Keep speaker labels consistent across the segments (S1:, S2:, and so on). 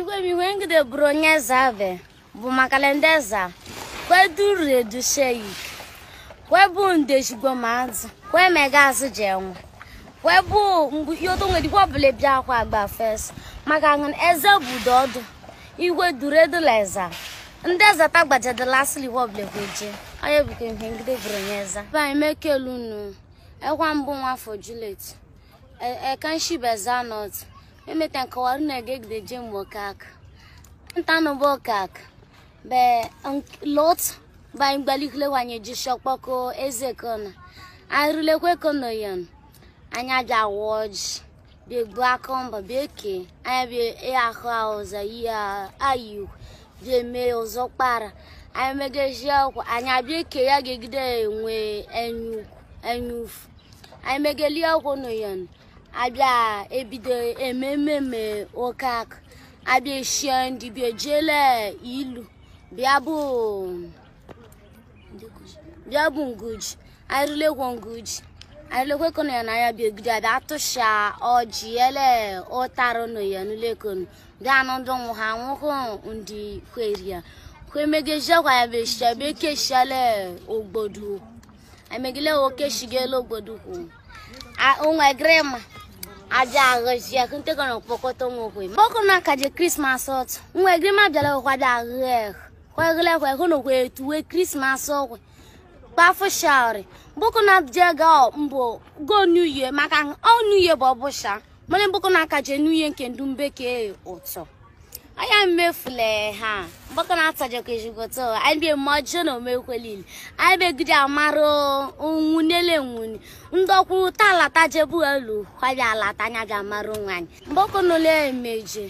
S1: Igwe m ihe ngide bụrụ onye eze zave bụ makalendeza kweduredu sheik kwebu ndeshigbo mazi kwe megazi jenwe kwebu nwere nwedikwa ọbụla bịa akwa agba fes maka eze budo ọdụ igwe dureduleza ndị ezata gbajadela asịlikwa ọbụla kweje onye bụkwa ihe ngide bụrụ onye eze anyị eza banyị ekwa mbụ nwafọ julet ekenshibezanot e emetan kawaruna gegde jem wakak ntano bokak be lot ba igbalikle wanye jishokpoko eze kona arulekwe kono yon anya ja woj bi gba anya bi e ahụ ọzọ ya ayu bi eme ọzọ anya megeji ọkwa anya bi eke ya gegide enwe enyu enyu no abịa ebido ememe me oke akụ abịa eshie ndị bịa jele ilu bịa bụ bịa bụ nguji arịlekwa nguji arịlekwa kono ya na ya bịa ogide abịa atụsha ọjị ele ụtarụ nọ ya n'ulekonu bịa nọdụ nwụ ha nwụhụ ndị kweri ya kwemegejekwa ya bịa eshia bịa ekeshiele ogbodu emegile okeshigele ogbodu kwụ onwe ma. ajaghịzi akụntegọrọ kpọkọtọnwokwe mọkụ na kaje krismas ọt nwa egrima bịara ụkwada kwaghịlekwa hụnokwe etuwe krismas ọkwe kpafụsharị bụkụ na jega mbụ go new year maka ọ new year bụ ọbụsha mana na kaje new year nke ndu mbekee ụtọ anya mmefule ha mgbakọ na-atajọka ejigoto anyị bie mma ọjọọ na omekwelili anyị begide amara onwu n'ele nwuni ta ọkwụ talatajebu elu kwabịa alata anya bịa mara onwe anyị mgbakọ n'ụlọ emeje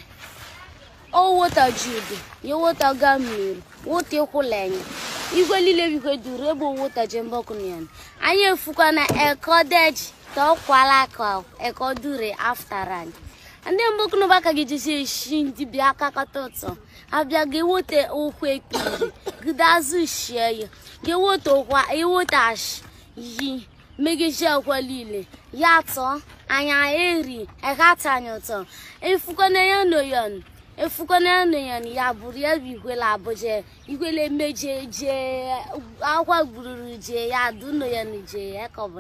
S1: owota judu ya wota ga mmiri wota ịkwụla enyi igwe niile bikwe duru ebe owota je mgbakọ na ya anyị efukwa na ekodeji ka ọ kwala ka ekodure aftara anyị ndị mbụ kụnụba ka gị jisi eshi ndị bịa aka kata ụtọ abịa gị wote ụkwụ ekpiri gịdazụ shie ya gị wote ụkwa iwote ashi yi megiji niile ya tọ anya eri ekatanya ụtọ efukọna ya noyon efukọna ya noyon ya bụrụ ya bụ abụja akwa gbururu ya ya kọbụ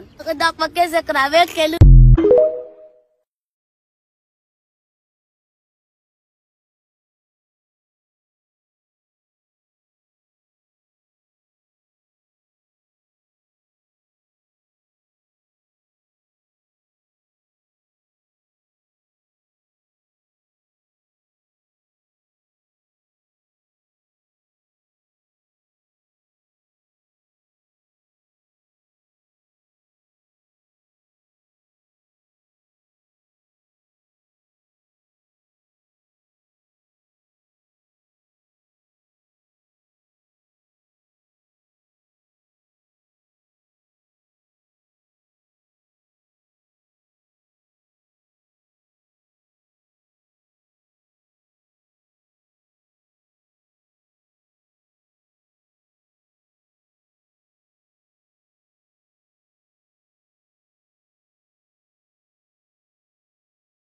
S1: ekele